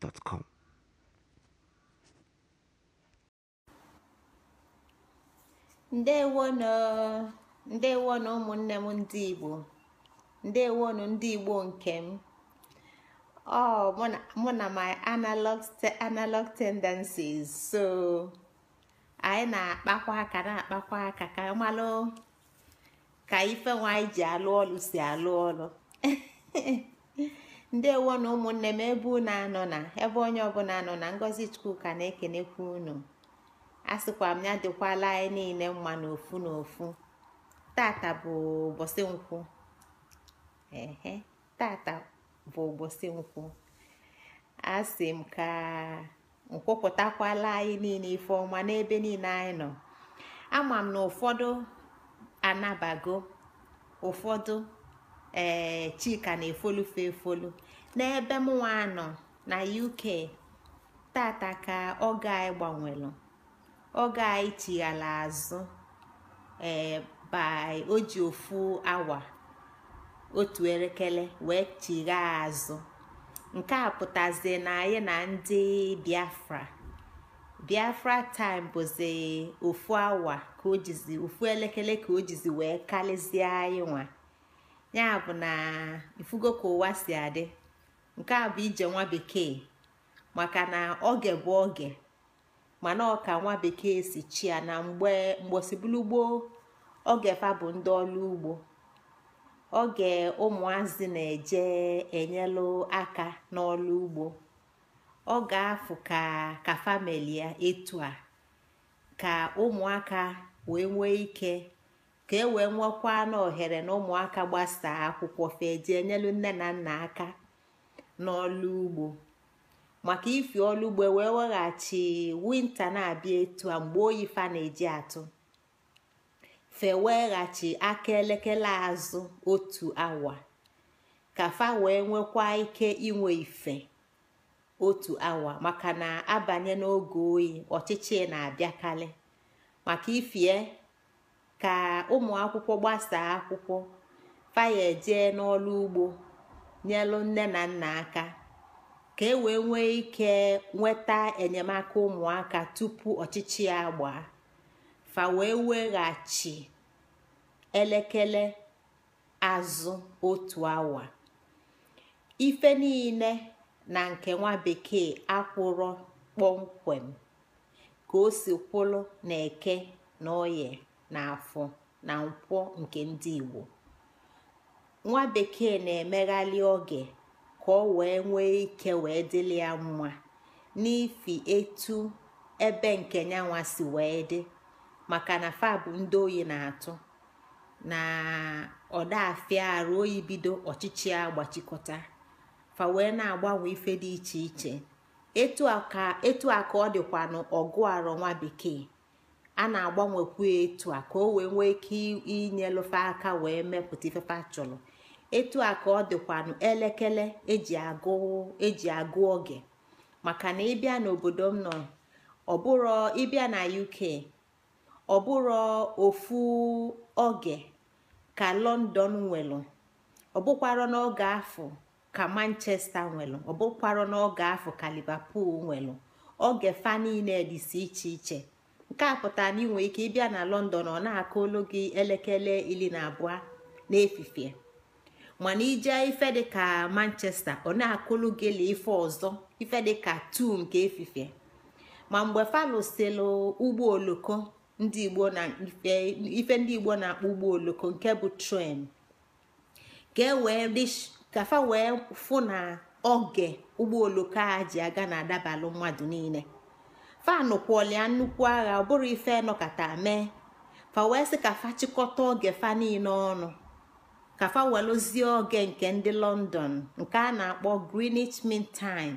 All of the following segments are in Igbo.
gmail.com. ndewonu ndewonu ụmụnne m ndị igbo ndewonu ndị igbo nke m ọ mụ na my analog tendencies so anyị na-akpakwa aka na-akpakwa aka ka malụ ka ife nwaanyị ji alụ ọlụ si alụ ọlụ ndewo na ụmụnne m ebe unu anọ na ebe onye ọbụla anọ na ngọzi ka na-ekenekwu unu a sịkwa m ya dịkwala anyị niile mma n'ofu n'ofu tata bụ ụbọchị nkwụ ehe tata bụ nkwụ a sị m ka nkwupụtakwala anyị niile ife ọma n'ebe niile anyị nọ ama m na ụfọdụ anabago ụfọdụ ee eh, chika na-efolufe efolu n'ebe mụnwa nọ na uk tata ka oge anyị gbanwelu oge anyị chighala azụ ee eh, by o ofu awa otu elekere wee chighaa azụ nke a pụtazi na anyị na ndị biafra biafra time bụzi ofu awa ka ojizi ofu elekere ka o wee karịzie anyị nwa ya bụ na ifugo ka ụwa si adị nke a bụ ije nwa bekee maka na oge bụ oge mana ọka nwa bekee si chia na mgbe mgbosibulu gboo oge fa bụ ndị ọlụ ugbo oge ụmụazị na-eje enyelụ aka n'ọlụ ugbo oge afụ ka ka famili ya etu a ka ụmụaka wee nwee ike ka e wee nwekwa na ohere na ụmụaka gbasaa akwụkwọ fee enyelu nne na nna aka n'ọlụ ugbo maka ifi ọlụ ugbo e wee weghachi winta na-abịa etu a mgbe oyi fa na-eji atụ fe ghachi aka elekere azụ otu awa ka fa wee nwekwa ike inwe ife otu awa maka na abanye n'oge oyi ọchịchị na-abịakarị maka ifie e, ka ụmụ akwụkwọ gbasaa akwụkwọ faya ejee n'ọlụ ugbo nyelụ nne na nna aka ka e wee nwee ike nweta enyemaka ụmụaka tupu ọchịchị ya gbaa fa wee weghachi elekere azụ otu awa ife niile na nke nwa bekee akwụrọ kpọmkwem ka o si kwụrụ na eke na oye na na nkwọ nke ndị igbo nwa bekee na emeghali oge ka ọ wee nwee ike wee dịlị ya mma n'ifi etu ebe nke nyanwa si wee dị maka na fa bụ ndị oyi na-atụ na ọdafia arụ ruo bido ọchịchị a gbachikọta fa wee na-agbanwe ife dị iche iche etu a ọ dịkwa n'ọgụ arọ nwa bekee a na-agbanwekwu etu a ka o wee nwee ike inyelụfe aka wee mepụta ifefe a etu a ka ọ dịkwanụ elekere eji agụ eji agụ oge maka na ịbịa n'obodo m nọ ọbụrụ ịbịa na UK ọbụrụ ofu oge ka London nwelụ ọbụkwarọ n'oge afọ ka Manchester nwelụ ọbụkwarọ n'oge afọ ka Liverpool nwelụ oge fa niile dịsi iche iche nke a pụtara na ị nwere ike ịbịa na lọndọn ọ na-akụ olu gị elekere iri na abụọ n'efifie mana ije ife dịka manchesta ọ na akụlụ gị la ife ọzọ ife dịka tu nke efifie ma mgbe falụsilụ ụgbọ oloko ndị igbo na ife ndị igbo na-akpọ ụgbọ oloko nke bụ tren ka e wee kafa wee fụ na oge ụgbọ oloko a ji aga na-adabalụ mmadụ niile fanụ kwọlịa nnukwu agha ọ bụrụ ife nọkata mee fa wee sị ka fa chịkọta oge fa niile ọnụ ka fa oge nke ndị london nke a na-akpọ greenwich mean time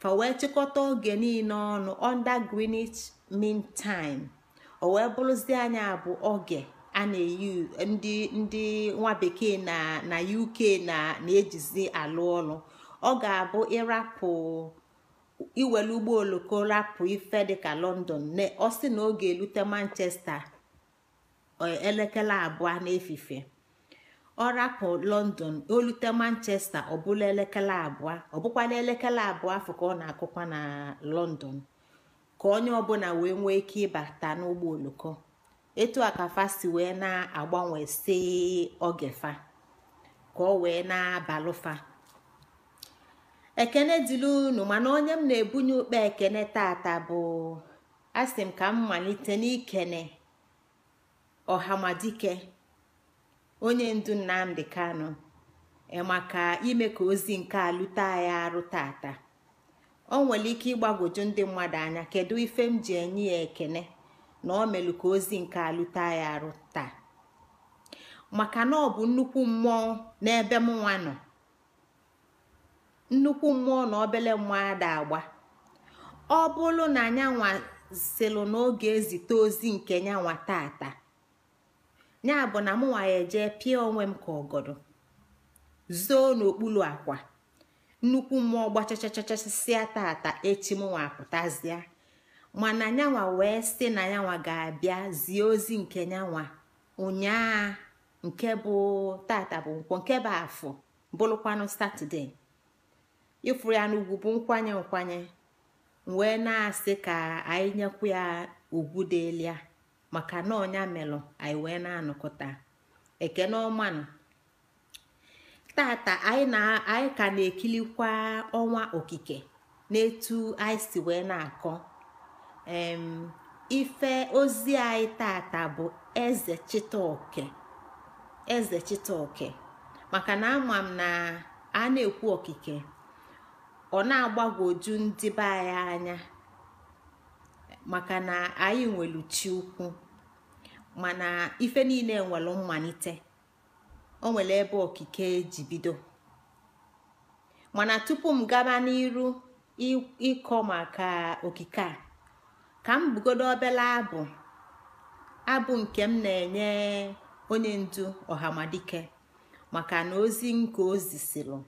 fa wee chịkọta oge niile ọnụ under greenwich mean time o wee bụrụzie anya bụ oge a na-eyi ndị ndị nwa bekee na na uk na na-ejizi alụ ọlụ ọ ga-abụ ịrapụ iwere ụgbọ oloko rapụ ife dịka london ọ sị na oge elute manchester e, elekere abụọ n'efife ọ rapụ london olute manchester ọbụla elekere abụọ ọbụkwala elekere abụọ afọ ka ọ na-akụkwa na london ka onye ọbụla wee nwee ike ịbata n'ụgbọ oloko etu a ka fasi wee na-agbanwe si ogefa ka ọ wee na-abalụfa ekene dịla unu mana onye m na-ebunye ụkpa ekene tata bụ asị m ka m malite n'ikene ọhamadike onye ndu nnamdị Kanu maka ime ka ozi nke alụta ya arụ tata o nwere ike ịgbagwoju ndị mmadụ anya kedu ife m ji enye ya ekene na o melu ka ozi nke alụta ya arụ taa maka na ọ bụ nnukwu mmụọ n'ebe mụnwa nọ nnukwu mmụọ na obele mmụọ ada agba ọ bụrụ na nyanwa silụ n'oge ezite ozi nke nyanwa tata ya bụ na mụnwa ya ejee pịa onwe m ka ọgọdọ zoo n'okpuru akwa nnukwu mmụọ gbachachachachasịa tata echi mụnwa apụtazịa mana nyanwa wee site na nyanwa ga-abịa zie ozi nke nyanwa ụnyaa nke bụ tata bụ nke bụ afọ bụrụkwanụ satọde ịfụrụ ya n'ugwu bụ nkwanye nkwanye wee na-asị ka anyị nyekwu ya ugwu elu ya maka na ọnya melụ anyị wee na-anọkọta ekeneọmanụ ọmanụ tata anyị ka na-ekilikwa ọnwa okike n'etu anyị si wee na-akọ ife ozi anyị tata bụ eze chitaoke eze maka na ama m na a na-ekwu okike ọ na-agbagwoju ndị be anyị anya maka na anyị nwere chi ukwu mana ife niile nwelu mmalite o nwere ebe okike eji bido mana tupu m gaba n'iru ịkọ maka okike a ka m bugodo obele abụ abụ nke m na-enye onye ndu ọhamadike maka na ozi nke ozi siri.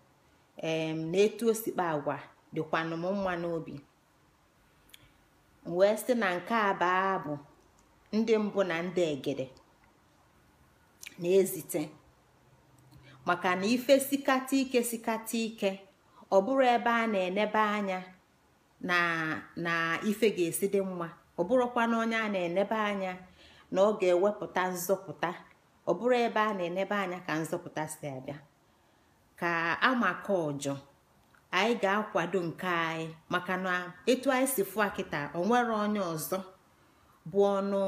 em um, na etu osikpa agwa dịkwanụ m mma n'obi wee sị na nke a baa abụ ndị mbụ na ndị egede na-ezite maka na ife sikata ike sikata ike ọ bụrụ ebe a na-enebe anya na ife ga-esi dị mma ọ bụrụkwa na onye a na-enebe anya na ọ ga-ewepụta nzọpụta ọ bụrụ ebe a na-enebe anya ka nzọpụta si abịa ka maka ọjọ anyị ga-akwado nke anyị maka na etu anyị si fụ akịta onwere onye ọzọ bụ ọnụ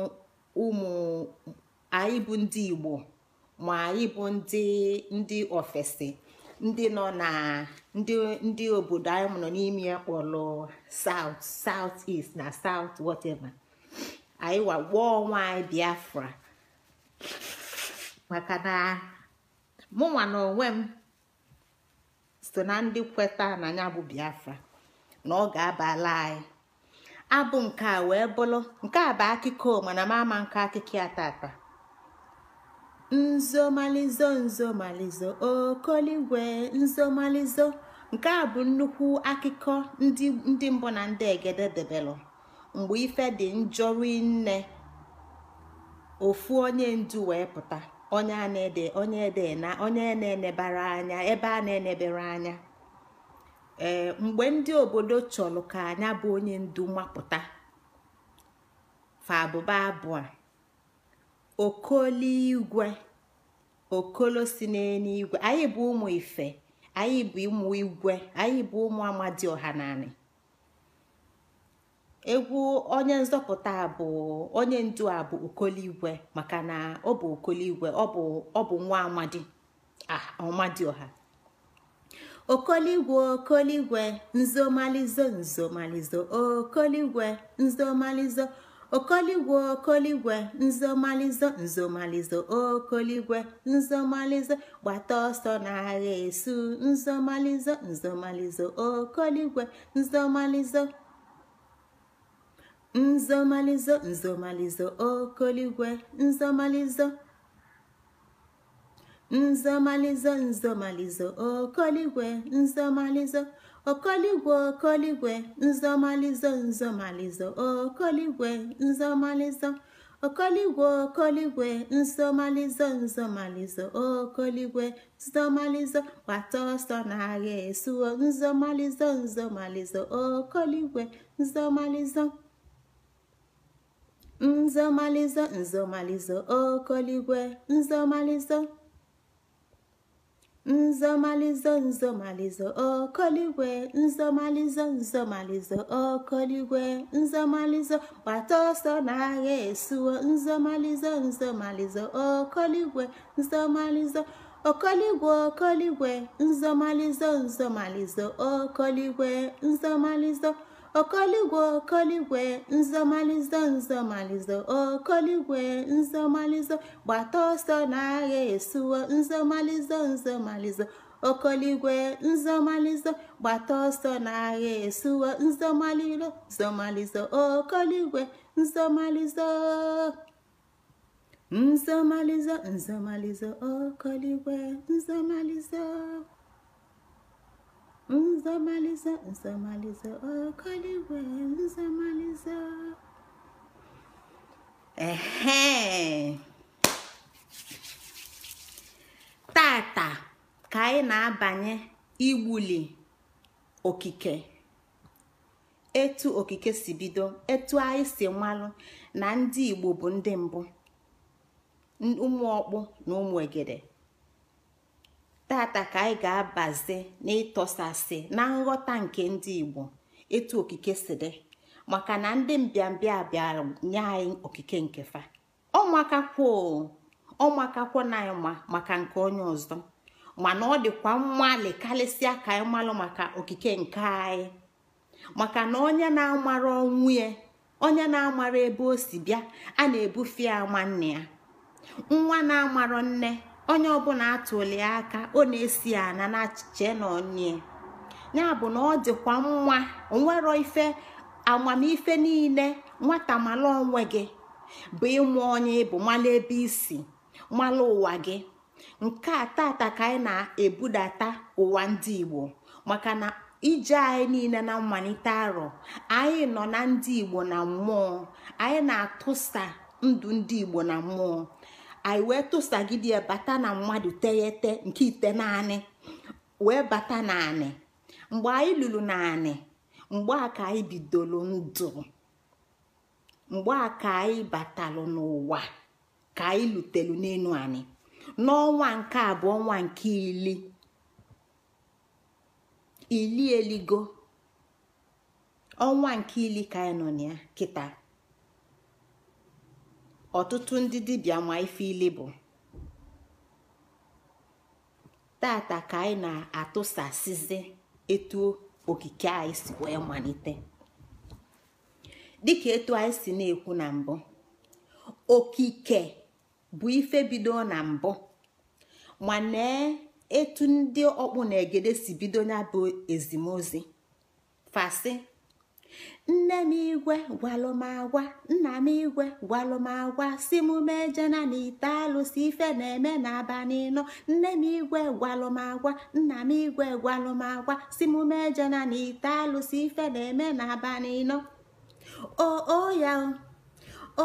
ụmụ anyị bụ ndị igbo ma anyị bụ ndị ndị ofesi ndị nọ na ndị obodo anyị nọ n'ime ya kpọrọ south south east na south whatever anyị anyị biafra maka na mụnwa na onwe m so na ndị kweta na ya bụ biafra na ọ ga-abala anyị abụ nke a wee bụrụ nke a bụ akụkọ mana m ama nke akụkọ ya tata nzomalizo nzomalizo okoligwe nzomalizo nke a bụ nnukwu akụkọ ndị mbụ na ndị egede debelụ mgbe ife dị njọ rinne ofu onye ndu wee pụta onye a na-ede onye ede na onye na-enebara anya ebe a na-enebere anya ee eh, mgbe ndị obodo chọrọ ka anya bụ onye ndu mapụta fa abụba abụọ okoliigwe okolo si n'eluigwe anyị bụ ụmụ ife anyị bụ ụmụ igwe anyị bụ ụmụ amadi ọhanani egwu onye nzọpụta bụ onye ndu a bụ okoligwe maka na ọ bụ okoligwe ọ bụ nwa amadi ah, ọha. okoligwe okoligwe nzomalizo nzomalizo okoligwe nzomalizo okoligwe okoligwe nzomalizo nzomalizo okoligwe nzomalizo gbata ọsọ n'agha esu nzomalizo nzomalizo okoligwe nzomalizo nzomalizo nzomalizo okoligwe nzomalizo nzomalizo nzomalizo okoligwe nzomalizo okoligwe okoligwe nzomalizo nzomalizo okoligwe nzomalizo okoligwe okoligwe nzomalizo nzomalizo okoligwe nzomalizo gbata ọsọ na-agha esuo nzomalizo nzomalizo okoligwe nzomalizo nzomalizo nzomalizo okoligwe nzomalizo nzomalizo nzomalizo okoligwe nzomalizo nzomalizo okoligwe nzomalizo gbata ọsọ n'agha esuwo nzomalizo nzomalizo okoligwe nzomalizo okoligwe okoligwe nzomalizo nzomalizo okoligwe nzomalizo Okoligwe Okoligwe nzomalizo nzomalizo Okoligwe nzọmalizọ gbata ọsọ na-agha esuwo nzomalizo nzomalizo Okoligwe nzọmalizọ gbata ọsọ na-agha esuwo nzomalizo nzọmalizọ Okoligwe nzọmalizọ nzọmalizọ nzomalizo Okoligwe nzomalizo. nzọmaliza nzọmaliza ọkọligwe nzọmaliza ehe tata ka anyị na-abanye iwuli okike etu okike si bido etu anyị si malụ na ndị Igbo bụ ndị mbụ ụmụ ọkpụ na ụmụ egede tata ka anyị ga-abazi na ịtọsasị na nghọta nke ndị igbo etu okike si dị maka na ndị mbịambịa bịara nye anyị okike nke fa ọmakakwo na anyị ma maka nke onye ọzọ mana ọ dịkwa mmalị karịsịa ka anyị malụ maka okike nke anyị maka na onye na-amara ọnwụ ya onye na-amara ebe o si bịa a na-ebufe ya nwanne ya nwa na-amara nne onye ọbụla atụli aka ọ na-esi ana na na onye ya bụ na ọ dịkwa nwa onwero ife amamife niile nwata mala onwe gị bụ ịmụ onye bụ mala ebe isi mala ụwa gị nke a tata ka anyị na-ebudata ụwa ndị Igbo maka na ije anyị niile na mmalite arọ anyị nọ na ndị Igbo na mmụọ anyị na-atụsa ndụ ndị Igbo na mmụọ anyị wee tụsagidie bata na mmadụ teghete nke ite naanị wee bata naanị mgbe anyị lụrụ naanị mgbe a ka anyị bidoro ndụ mgbe a ka anyị batalụ n'ụwa ka anyị lutelu n'elu anyị n'ọnwa nke abụọ ọnwa nke ili ili eligo ọnwa nke ili ka anyị nọ na ya kịta ọtụtụ ndị dibịa ma ife ile bụ tata ka anyị na-atụsasịzi etu okike anyị si wee malite dịka etu anyị si na-ekwu na mbụ okike bụ ife bido na mbụ mana etu ndị ọkpụ na egede si bido ya bụ ezimozi fasị nne m igwe gwalụmagwa nna m igwe gwalụmagwa si m mejena na ite alụsị ife na-eme n'abalị nọ nne m igwe gwalụmagwa nna m igwe gwalụmagwa si m mejena na ite alụsị ife na-eme n'abalị nọ o ya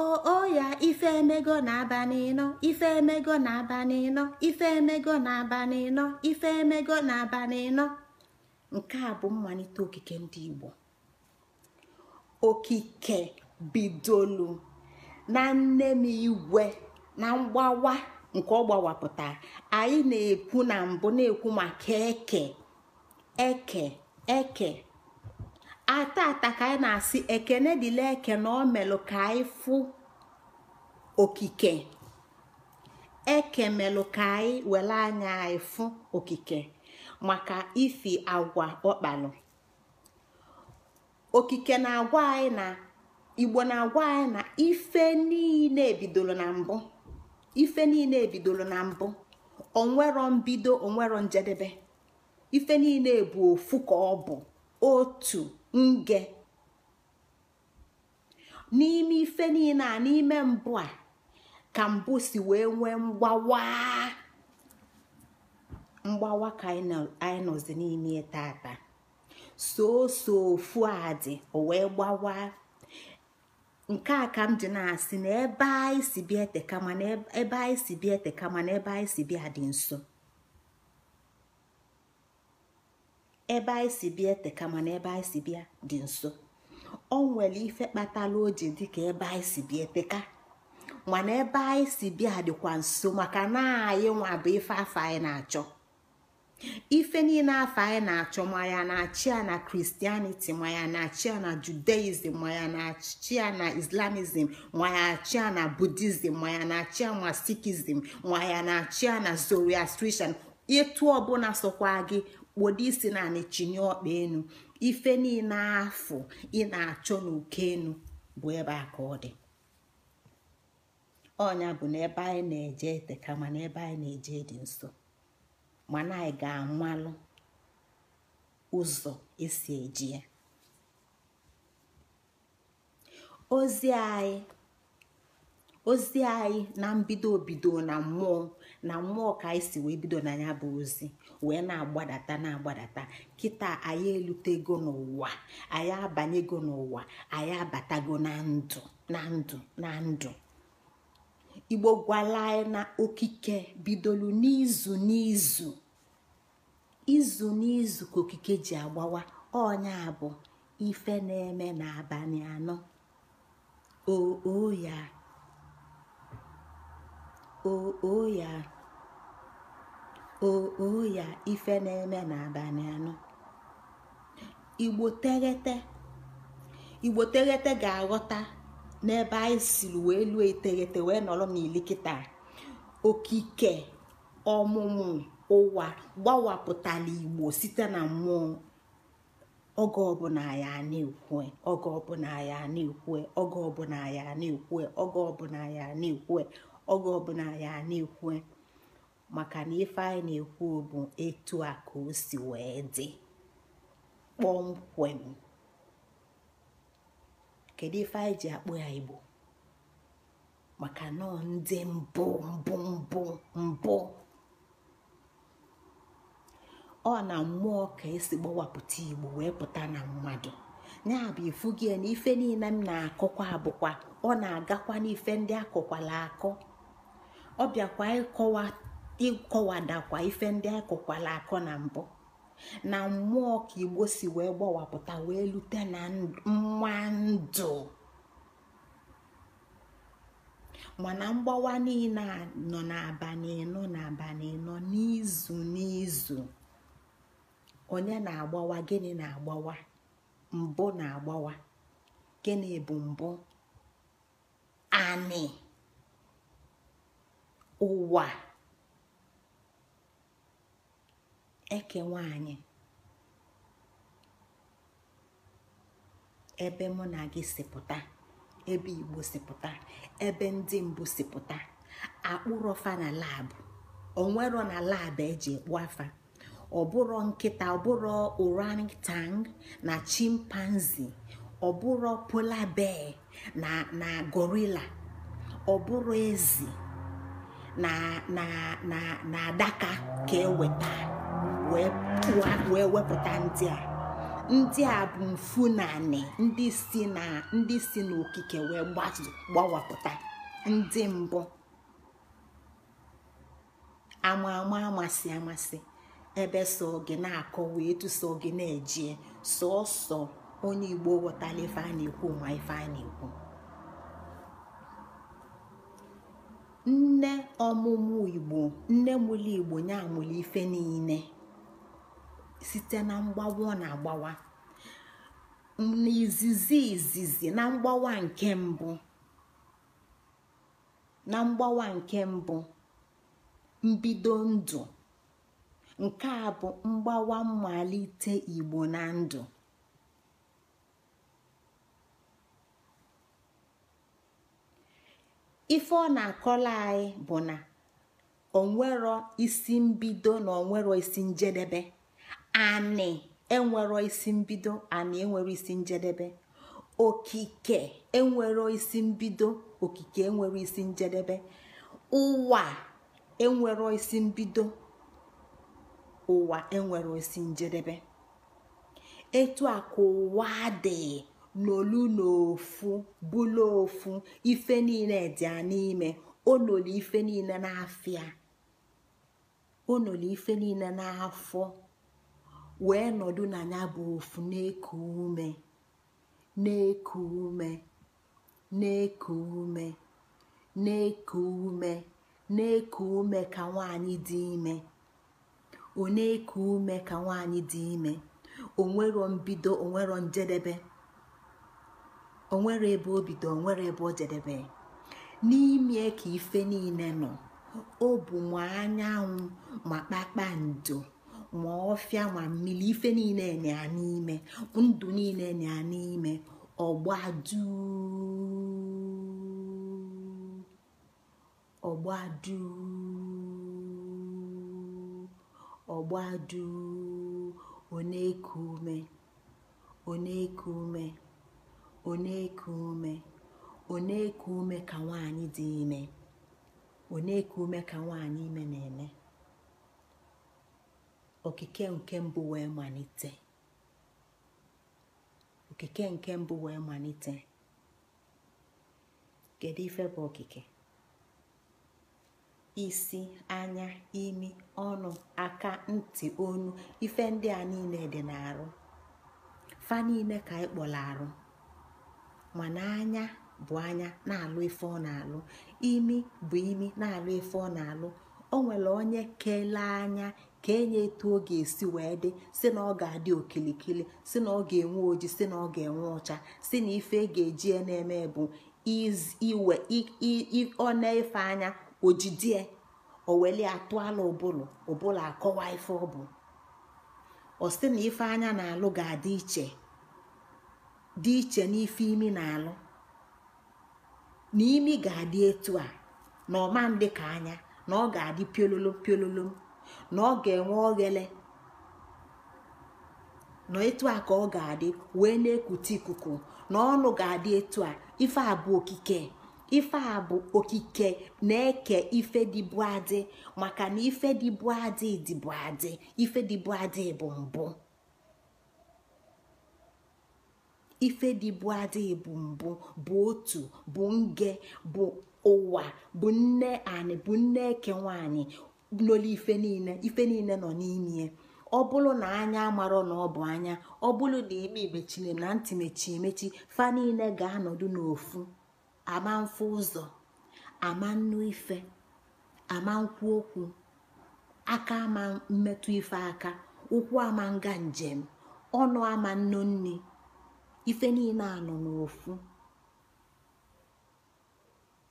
oo ya ife emego na aba ịnọ ife emego na aba nịnọ ife emego na aba ịnọ ife emego na aba ịnọ nke a bụ mmalite okike ndị Igbo okike bidolu na nne m igwe na mgbawa nke ọ anyị na-ekwu na mbụ na-ekwu maka eke eke eke ata ata ka anyị na-asị ekene dịla eke na ọ melụ ka anyị fụ okike eke melụ ka anyị were anya anyị fụ okike maka ifi agwa ọkpalụ okike na-agwa anyị na igbo na-agwa anyị na ife niile bidoro na mbụ ife niile bidoro na mbụ onwero mbido onwero njedebe ife niile bụ ofu ka ọ bụ otu nge n'ime ife niile a n'ime mbụ a ka mbụ si wee nwee mgbawa mgbawa ka anyị nọzi n'ime taata. soso ofu adị o wee gbawa nke a ka m na-asị na ebe anyị si bịa eteka na ebe anyị si bịa eteka mana ebe anyị si bịa dị nso ebe ebe si dị nso o nwere ife kpatara o ji ka ebe anyị si bịa eteka mana ebe anyị si bịa dịkwa nso maka na anyị nwa bụ ife afọ anyị na-achọ ife niile afọ anyị na-achọ ma ya na-achị ya na Kristianiti, ma ya na-achị ya na judaism ma ya na-achị ya na islamism ma ya achị ya na buddhism ma ya na-achị ya na sikhism ma ya na-achị ya na zoroastrian etu ọbụla sokwa gị kpodo isi na chinye ọkpa enu ife niile afọ ị na-achọ n'oke enu bụ ebe a ka ọ dị ọnya bụ n'ebe anyị na-eje ete kama ebe anyị na-eje dị nso mana anyị ga-amalụ ụzọ esi eji ya ozi anyị na mbido bido na mmụọ na mmụọ ka anyị si wee bido na ya bụ ozi wee na-agbadata na-agbadata kịta anyị elutego n'ụwa anyị abanyego n'ụwa anyị abatago na ndụ na ndụ na ndụ igbo gwala anyị na okike bidolu n'izu n'izu izu n'izu ka okike ji agbawa ọnya bụ ife na-eme n'abalị anọ o ya ya ife na-eme n'abalị anọ igbo teghete ga-aghọta n'ebe anyị siri wee lụọ eteghete wee nọrọ n'ilikịta okike ọmụmụ ụwa gbawapụtala igbo site na mmụọ oge ọbụla ya na-ekwue oge ọbụla ya na-ekwue oge ọbụla ya na-ekwue oge ọbụla ya na-ekwue oge ọbụla ya na ekwe maka na ife anyị na-ekwu bụ etu a ka o si wee dị kpọmkwem kedu ife anyị ji akpọ ya igbo maka nọọ ndị mbụ mbụ mbụ mbụ ọ na mmụọ ka esi gbawapụta igbo wee pụta na mmadụ ya bụ ifugi na ife niile m na-akọkwa bụkwa ọ na-agakwa n'ife ndị akọkwala akọ ọ bịakwa ịkọwadakwa ife ndị akọkwala akọ na mbụ na mmụọ ka igbo si wee gbawapụta wee lute na mma ndụ mana mgbawa niile nọ n'abalị ịnọ n'abalị ịnọ n'izu n'izu onye na-agbawa gịnị na-agbawa mbụ na-agbawa gịnị bụ mbụ anị ụwa eke nwanyị ebe mụ na gị sipụta ebe igbo sipụta ebe ndị mbụ sipụta akpụrọfa na labụ onwero na labụ eji ekpu afa ọbụrọ nkịta ọbụrọ tang na chimpanzee ọbụrọ polar bear na na gorilla ọbụrọ ezi na na adaka ka eweta wee wepụta ndị a ndị a bụ mfu ndị si na ndị si n'okike wee gbawapụta ndị mbụ ama ama amasị amasị ebe sọ gị na akọ wee tụsọ gị na-eje sọọsọ onye igbo ghọtala ife a na-ekwu ma ife a na-ekwu nne ọmụmụ igbo nne mụlụ igbo nye amụlụ ife niile site na mgbawa na-agbawa n'izizi izizi na mgbawa nke mbụ na mgbawa nke mbụ mbido ndụ nke a bụ mgbawa mmalite igbo na ndụ ife ọ na-akọla anyị bụ na onwero isi mbido na onwero isi njedebe anị enwero isi mbido anị enwero isi njedebe okike enwero isi mbido okike enwero isi njedebe ụwa enwero isi mbido ụwa enwere osi njedebe etu a ka ụwa dị n'olu n'ofu bụla ofu ife niile dị n'ime onolu ife niile n'afịa onolu ife niile n'afọ wee nọdụ na ya bụ ofu na-eku ume na-eku ume na-eku ume na-eku ume na-eku ume ka nwaanyị dị ime ọ na ume ka nwaanyị dị ime onwero mbido onwero njedebe onwere ebe obido nwere ebe ojedebe. n'ime ka ife niile nọ ọ bụ ma anyanwụ ma kpakpando ma ọfịa ma mmiri ife niile na n'ime ndụ niile na n'ime ọgbadu ọgbadu ọgbaduu ọ na-eku ume ka nwaanyị dị ime ọ ka nwaanyị ime na-eme okike nke mbụ wee malite okike nke mbụ wee malite kedu ife bụ okike isi anya imi ọnụ aka ntị onu ife ndị a niile dị n'arụ fa niile ka anyị kpọrọ arụ mana anya bụ anya na-alụ ife ọ na-alụ imi bụ imi na-alụ ife ọ na-alụ o nwere onye kelee anya ka enye etu ọ ga-esi wee dị si na ọ ga-adị okilikili si na ọ ga-enwe oji si na ọ ga-enwe ọcha si na ife e ga-eji na-eme bụ iwe ọ na-efe anya ojidie oweli atụala ụbụlụ ụbụlụ akọwa ife ọ bụ ọ na ife anya na-alụ ga-adị iche dị iche n'ife imi na-alụ na imi ga adi etu a na ọma ndị ka anya na ọ ga-adị piololo piololo na ọ ga-enwe oghele na etu a ka ọ ga-adị wee na-ekute ikuku na ọnụ ga adi etu a ife a bụ okike ife a bụ okike na-eke ife dịbụ adị maka na ife dịbụ adị dịbụ adị ife dịbụ adị bụ mbụ ife dịbụ adị bụ mbụ bụ otu bụ nge bụ ụwa bụ nne anị bụ nne eke nwanyị n'olu ife niile ife niile nọ n'ime ọ bụrụ na anya amarọ na ọ bụ anya ọ bụrụ na ime mechiri na ntị mechi emechi fa niile ga-anọdụ n'ofu ama mfe ụzọ ama nnu ife ama nkwu okwu aka ama mmetụ ife aka ụkwụ ama nga njem ọnụ ama nnu nni ife niile anọ ofu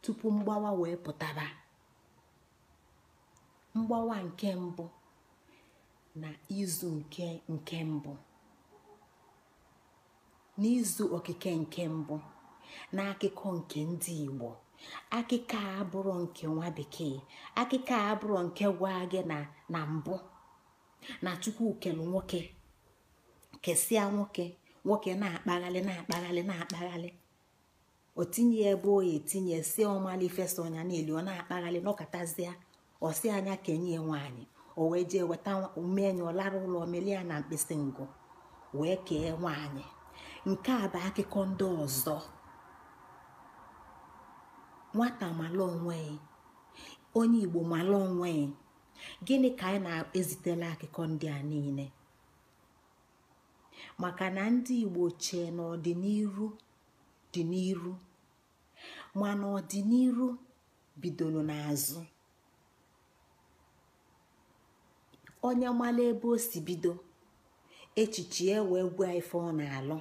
tupu mgbawa wee pụtaba mgbawa nke mbụ na izu nke nke mbụ n'izu okike nke mbụ n'akụkọ nke ndị Igbo akụkọ a abụrụ nke nwa bekee akụkọ a abụrụ nke gwa gị na mbụ na chukwukelu nwoke kesịa nwoke nwoke na-akpaghalị na-akpaghalị na-akpaghalị o tinye ebe o etinye si ọmali fesa ọnya niile ọ na-akpaghalị nọkọtazịa ọsị anya kenye nwaanyị o wee jee weta umenyụ lara ụlọ melie na mkpịsị ngụ wee kee nwaanyị nke a bụ akụkọ ndị ọzọ nwata mala onwe onye igbo mala onwe gịnị ka anyị na-ezitela akụkọ ndị a niile maka na ndị igbo chee na dị n'iru mana ọdịnihu bidoro n'azụ onye mala ebe o si bido echiche ya wee gwa ife ọ na-alụ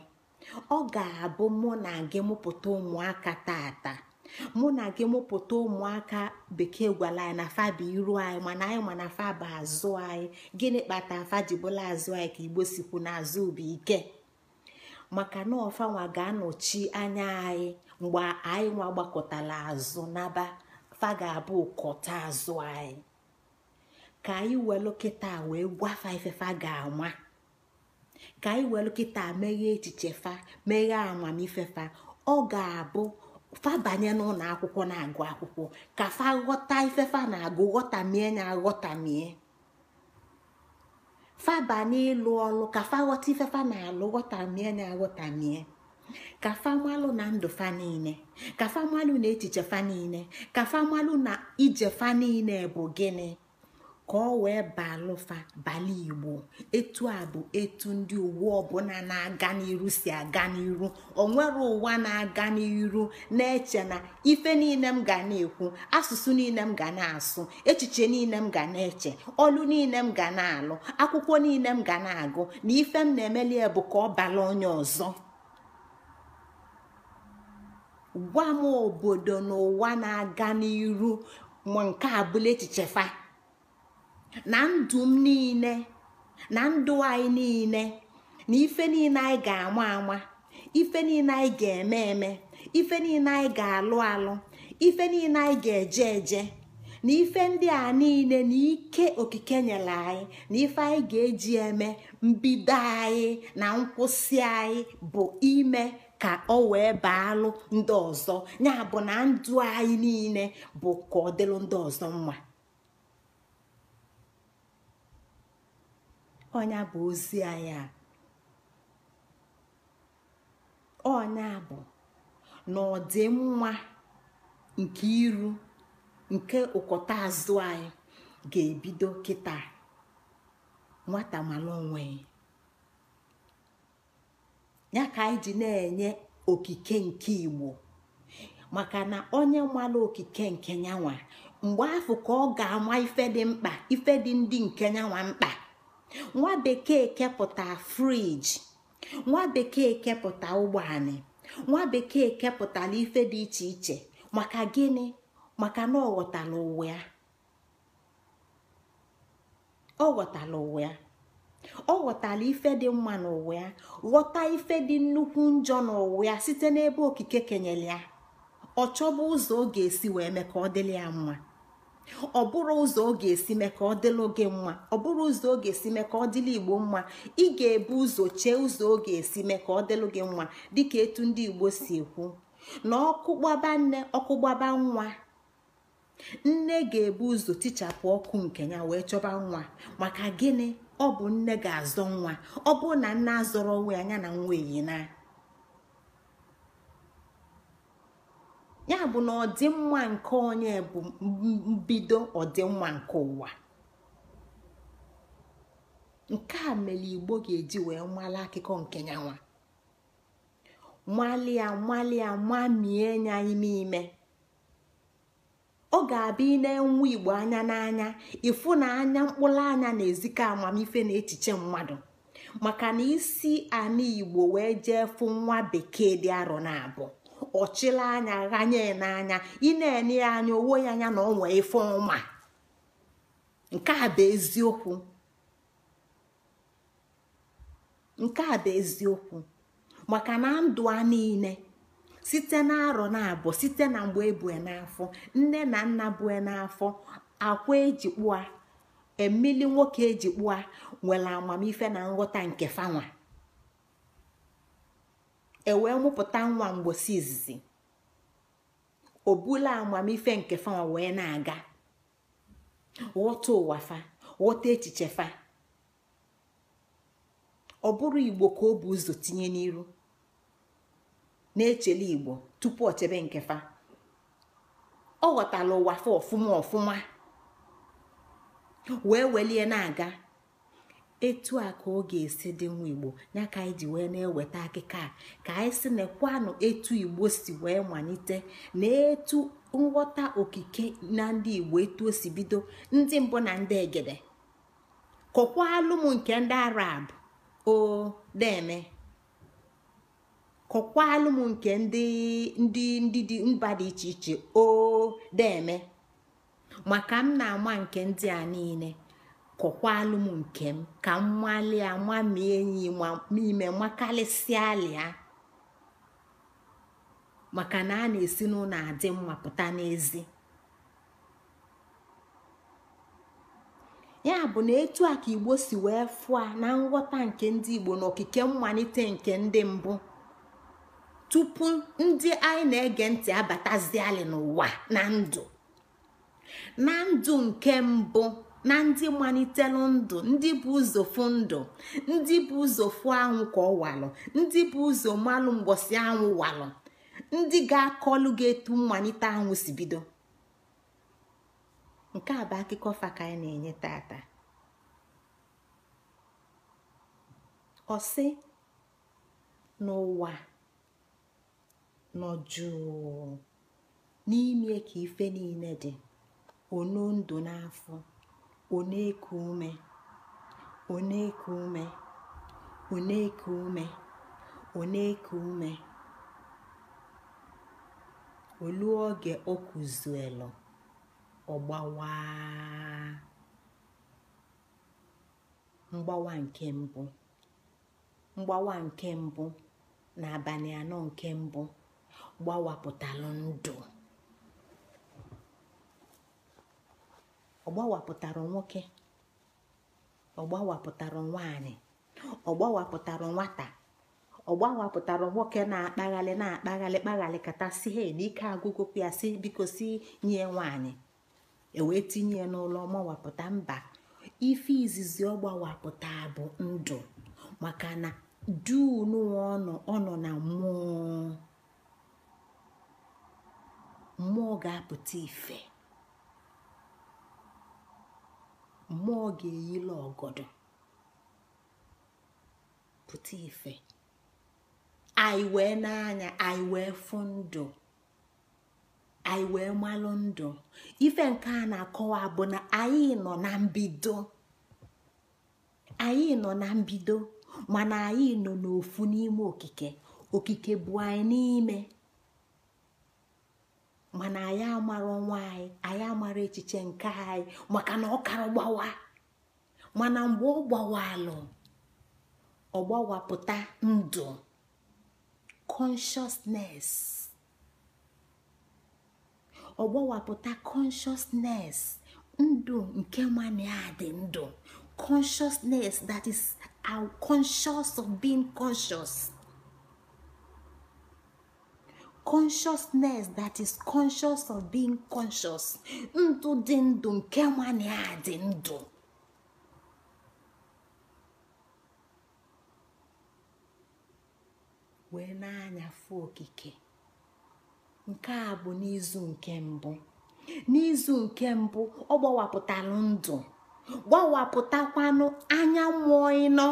ọ ga-abụ mụ na gị mụpụta ụmụaka tata mụ na gị mụpụta ụmụaka bekee gwara anyị na afa bụ iru anyị mana anyị ma na afa bụ azụ anyị gịnị kpata afa ji bụla azụ anyị ka igbo sikwu na azụ bụ ike maka na ọfanwa ga-anọchi anya anyị mgbe anyị nwa gbakọtara azụ n'aba fa ga-abụ ụkọta azụ anyị ka anyị welu kịta wee gwafa ifefa ga-anwa ka anyị welu kịta meghee echiche fa meghee amamifefa ọ ga-abụ fa banye n'ụlọ akwụkwọ na-agụ akwụkwọ ka fa ghọta ifefa na-agụ ghọtamie na aghọtamie Faba banye ọlụ ka fa ghọta ifefa na-alụ ghọtamie na aghọtamie ka famalụ na ndụ fa niile ka famalụ na echiche fa niile ka famalụ na ije fa niile bụ gịnị ka ọ wee balụfa bala igbo etu a bụ etu ndị uwe ọbụla na-aga n'iru si aga n'iru nwere ụwa na-aga n'iru na-eche na ife niile m ga na-ekwu asụsụ niile m ga na-asụ echiche niile m ga na-eche ọlụ niile m ga na-alụ akwụkwọ niile m ga na-agụ na ife m na-emeli bụ ka ọ bala onye ọzọ gwa m obodo na ụwa na-aga n'iru ma nke abụla bụla echiche fa na ndụ niile na ndụ anyị niile na ife niile anyị ga-ama ama ife niile anyị ga-eme eme ife niile anyị ga-alụ alụ ife niile anyị ga-eje eje na ife ndị a niile na ike okike nyere anyị na ife anyị ga-eji eme mbido anyị na nkwụsị anyị bụ ime ka ọ wee baalụ ndị ọzọ ya bụ na ndụ anyị niile bụ ka ọ dịlụ ndị ọzọ mma onye bụ ozi anya a ọnya bụ na ọdịmma nke iru nke ụkọta azụ anyị ga-ebido kịta nwata mara onwe ya ka anyị ji na-enye okike nke igbo maka na onye mara okike nke nyanwa mgbe afọ ka ọ ga-ama ife dị mkpa ife dị ndị nke nyanwa mkpa nwa bekee kepụta friji nwa bekee kepụta ụgbọani nwa bekee kepụtara ife dị iche iche maka gịnị maka na ọ ghọtala ụwa ya ọ ghọtala ụwa ya ọ ghọtala ife dị mma n'ụwa ya ghọta ife dị nnukwu njọ n'ụwa ya site n'ebe okike kenyere ya ọ chọba ụzọ ọ ga-esi wee mee ka ọ dịrị ya mma ọ bụrụ ụzọ ọ ga-esi mee ka ọ dịlụ gị mma ọ bụrụ ụzọ ọ ga-esi mee ka ọ dịlụ igbo mma ị ga-ebu ụzọ chee ụzọ ọ ga-esi mee ka ọ dịlụ gị mma dịka etu ndị igbo si ekwu na gbaba nne gbaba nwa nne ga-ebu ụzọ tichapụ ọkụ nke ya wee chọba nwa maka gịnị ọ bụ nne ga-azọ nwa ọ bụ na nne azọrọ onwe ya na nwa na ya bụ na ọdịmma nke onye bụ mbido ọdịmma nke ụwa nke a mere igbo ga-eji wee mala akụkọ nke nyanwa malia malia mamie nya ime ime ọ ga-abịa ị na-enwe igbo anya n'anya ịfụ na anya mkpụrụ anya na-ezikọ amamife na echiche mmadụ maka na isi ana igbo wee jee fụ nwa bekee dị arọ na abụọ ọchịla anya ghanye n'anya ị na-enye ya anya owo ya anya na onwe ife ọma nke a bụ eziokwu nke a bụ eziokwu maka na ndụ a niile site na arọ na-abụ site na mgbe ebue n'afọ nne na nna bue n'afọ akwa eji kpụa emili nwoke eji kpụa nwere amamife na nghọta nke fanwa E wee mụpụta nwa mgbosi izizi o bula amamife nke wee na-aga ghọta ụwa fa ghọta echiche fa ọ bụrụ igbo ka ọ bụ ụzọ tinye n'iru na-echele igbo tupu o chebe nke fa ọ ghọtala ụwa fa ọfụma ọfụma wee welie na-aga etu a ka ọ ga-esi dị nwa igbo ya ka anyị ji wee na-eweta akịka a ka anyị si nakwanụ etu igbo si wee malite na etu nghọta okike na ndị igbo etu o si bido ndị mbụ na ndị egede kọkwalụ m nke ndị arab o deme kọkwalụ m nke ndị ndị dị mba dị iche iche o deme maka m na-ama nke ndị a niile kọkwalụ alụm nke m ka m a ma enyi n'ime makarịsịa lịa maka na a na-esi n'ụlọ adị mma pụta n'ezi ya bụ na etu a ka igbo si wee fụọ na nghọta nke ndị igbo na okike mmalite nke ndị mbụ tupu ndị anyị na-ege ntị alị n'ụwa na ndụ na ndụ nke mbụ na ndị malitelu ndụ ndị bụ ụzọ ndụ ndị bụ ụzọ fụ anwụ ka ọ walụ ndị bụ ụzọ malụ mgbọsị anwụ walụ ndị ga-akọlụ ga-etu mmalite anwụ si bido nke a bụ akụkọ fa ka anyị na-enye tata ọ sị n'ụwa nọ jụụ n'ime ka ife niile dị ono ndụ n'afọ ọ na-eku ume ọ na-eku ume ọ na-eku ume ọ na-eku ume olu oge o kuzuelu ogbawa mgbawa nke mbụ mgbawa nke mbụ na abalị anọ nke mbụ gbawapụtalụ ndụ ọgbawapụtara nwoke ọgbawapụtara nwaanyị ọgbawapụtara nwata ọgbawapụtara nwoke na-akpaghalị na-akpaghalị kpaghalị kata si he n'ike agụgụ ya si biko si nye nwaanyị ewee tinye n'ụlọ ọgbawapụta mba ife izizi ọgbawapụta bụ ndụ maka na dunụwa ọ ọnụ na mmụọ mmụọ ga-apụta ife mmụọ ga eyi ọgọdọ pụta ife anyị wee n'anya anyị wee fụ ndụ anyị wee malụ ndụ ife nke a na-akọwa bụ na anyị nọ na mbido anyị nọ na mbido mana anyị nọ n'ofu n'ime okike okike bụ anyị n'ime mana anyị amara ọnwa anyị anyị amara echiche nke anyị maka na ọ kara gbawa mana mgbe ọ gbawalụ ọ gbawapụta ndụ consciousness ọ gbawapụta consciousness ndụ nke mania dị ndụ consciousness that is our uh, conscious of being conscious consciousness that is conscious of being conscious ndụ dị ndụ nke nwanne ya dị ndụ wee na-anyafụ okike nke a bụ n'izu nke mbụ n'izu nke mbụ ọ gbawapụtalụ ndụ gbawapụtakwanụ anya mmụọ ịnọ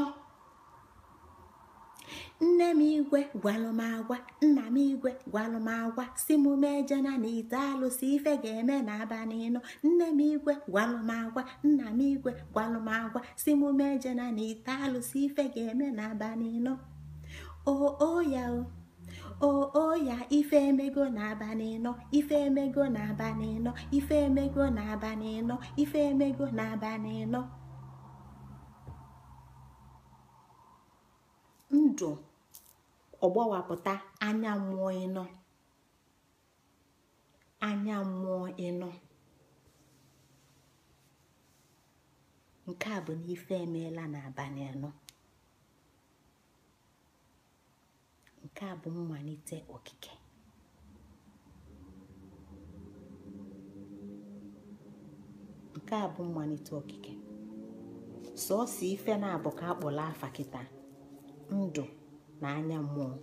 nne m igwe gwalụmagwa nna m igwe gwalụmagwa si m na ite alụsị ife ga-eme na abalị nne m igwe gwalụmagwa nna m igwe gwalụmagwa si m na ite alụsị ife ga-eme na ooya ya ife emego na aba ife emego na aba ife emego na ife emego na ndụ ọgbawapụta anya mmụọ ịnọ anya mmụọ ịnọ nke a bụ na emeela n'abalị anọ nke a bụ mmalite okike nke a bụ mmalite okike sọọsọ ife na-abụ ka akpọrọ afa kịta ndụ na anya mmụọ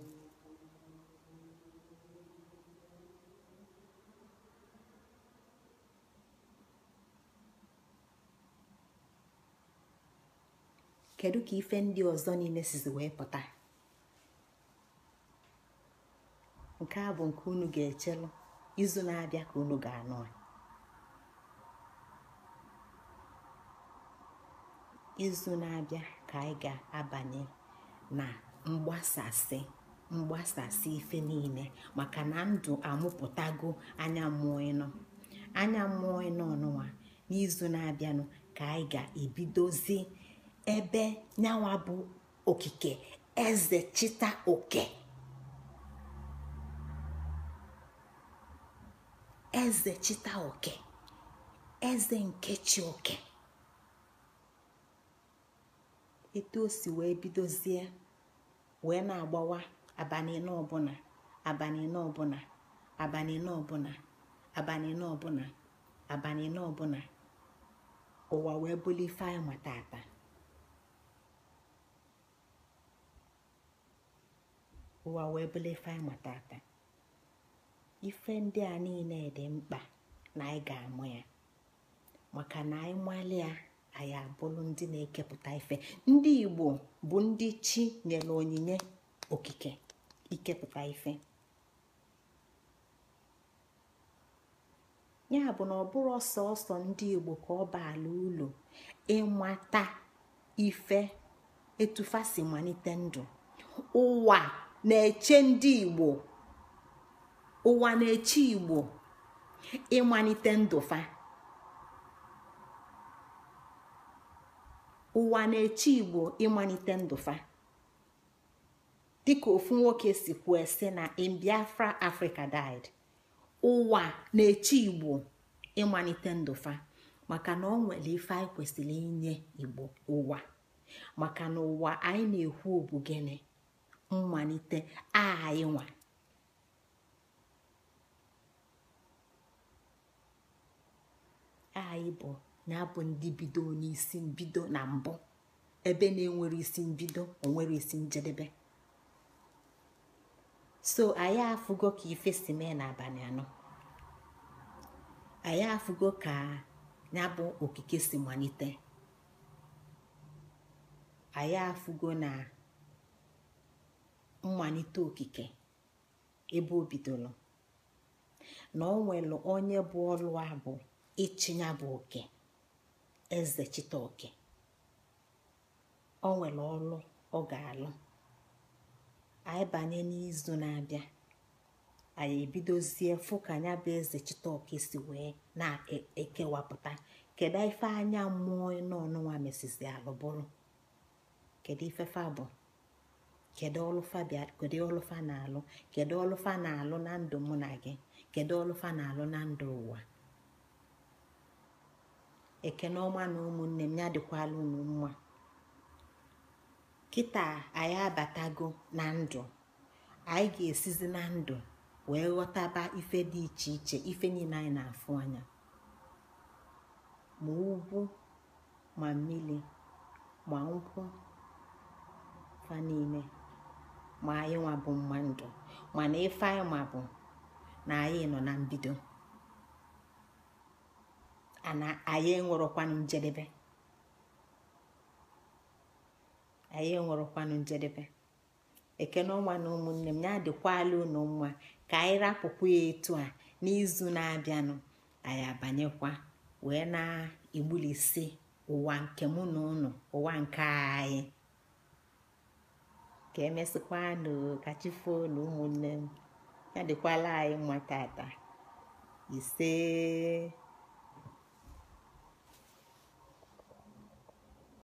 kedu ka ife ndị ọzọ niile sizi wee pụta nke a bụ nke unu ga-echelụ izu na-abịa ka unu ga-anụ izu na-abịa ka anyị ga-abanye na mgbasasị mgbasasị ife niile maka na ndụ amụpụtago anya mmụọ ịnọ anya mmụọ ịnọ ọnụnwa n'izu na-abịanụ ka anyị ga-ebidozi ebe nyawa bụ okike eze chita oke eze oke eze nkechi oke etu o si wee bidozie wee na-agbawa abalị na ọbụla abalị na ọbụla abalị ụwa wee bụli ife anyị ma ụwa wee ife anyị ife ndị a niile dị mkpa na anyị ga-amụ ya maka na anyị malị ya anyị abụrụ ndị na-ekepụta ife ndị igbo bụ ndị chi nyere onyinye okike ikepụta ife ya bụ na ọ bụrụ ọsọ ọsọ ndị igbo ka ọ ala ụlọ ịmata ife etufa si malite ndụ ụwa na-eche ndị igbo ụwa na-eche igbo ịmalite ndụ fa ụwa na-eche igbo ịmalite ndụfa dịka ofu nwoke si kwuo sị na in biafra africa died ụwa na-eche igbo ịmalite ndụfa maka na ọ nwere ife anyị kwesịrị inye igbo ụwa maka na ụwa anyị na-ekwu obu gịnị mmalite anyị nwa anyị bụ na-abụ ndị bido n'isi mbido na mbụ ebe na-enwere isi bido onwere isi njedebe so anyị afụgo ka ife si mee n'abalị anọ anyị afụgo ka ya bụ okike si malite anyị afụgo na mmalite okike ebe o bidoro na o nwere onye bụ ọrụ abụ bụ ịchịnya bụ oke. eze chitọọkị o nwere ọlụ ọ ga-alụ anyị banye n'izu na-abịa anyị ebidozie fụ ka anya bụ eze chitọọkị si wee na-ekewapụta kedu ife anya mmụọ n'ọnụnwa mesizi alụbụrụ kedu ife fa bụ ọlụfa kedu ọlụfa na-alụ kedu ọlụfa na-alụ na ndụ mụ na gị kedu ọlụfa na-alụ na ndụ ụwa ekene ọma na ụmụnne m ya dịkwala unu mma kịta anyị abatago na ndụ anyị ga-esizi na ndụ wee ghọtaba ife dị iche iche ife niile anyị na-afụ anya ma ugwu ma mmiri ma nkwụ fa niile ma anyị nwa bụ mma ndụ mana ife anyị ma bụ na anyị nọ na mbido na anyị enwerọkwanụ njedebe anyị enwerọkwanụ njedebe ekene ọnwa na ụmụnne m ya adịkwala unu mma ka anyị rapụkwa ya etu a n'izu na-abịanụ anyị abanyekwa wee na-egbulisi ụwa nke mụ na unu ụwa nke anyị ka emesịkwanụ ka na ụmụnne m ya dịkwala anyị mma tata ise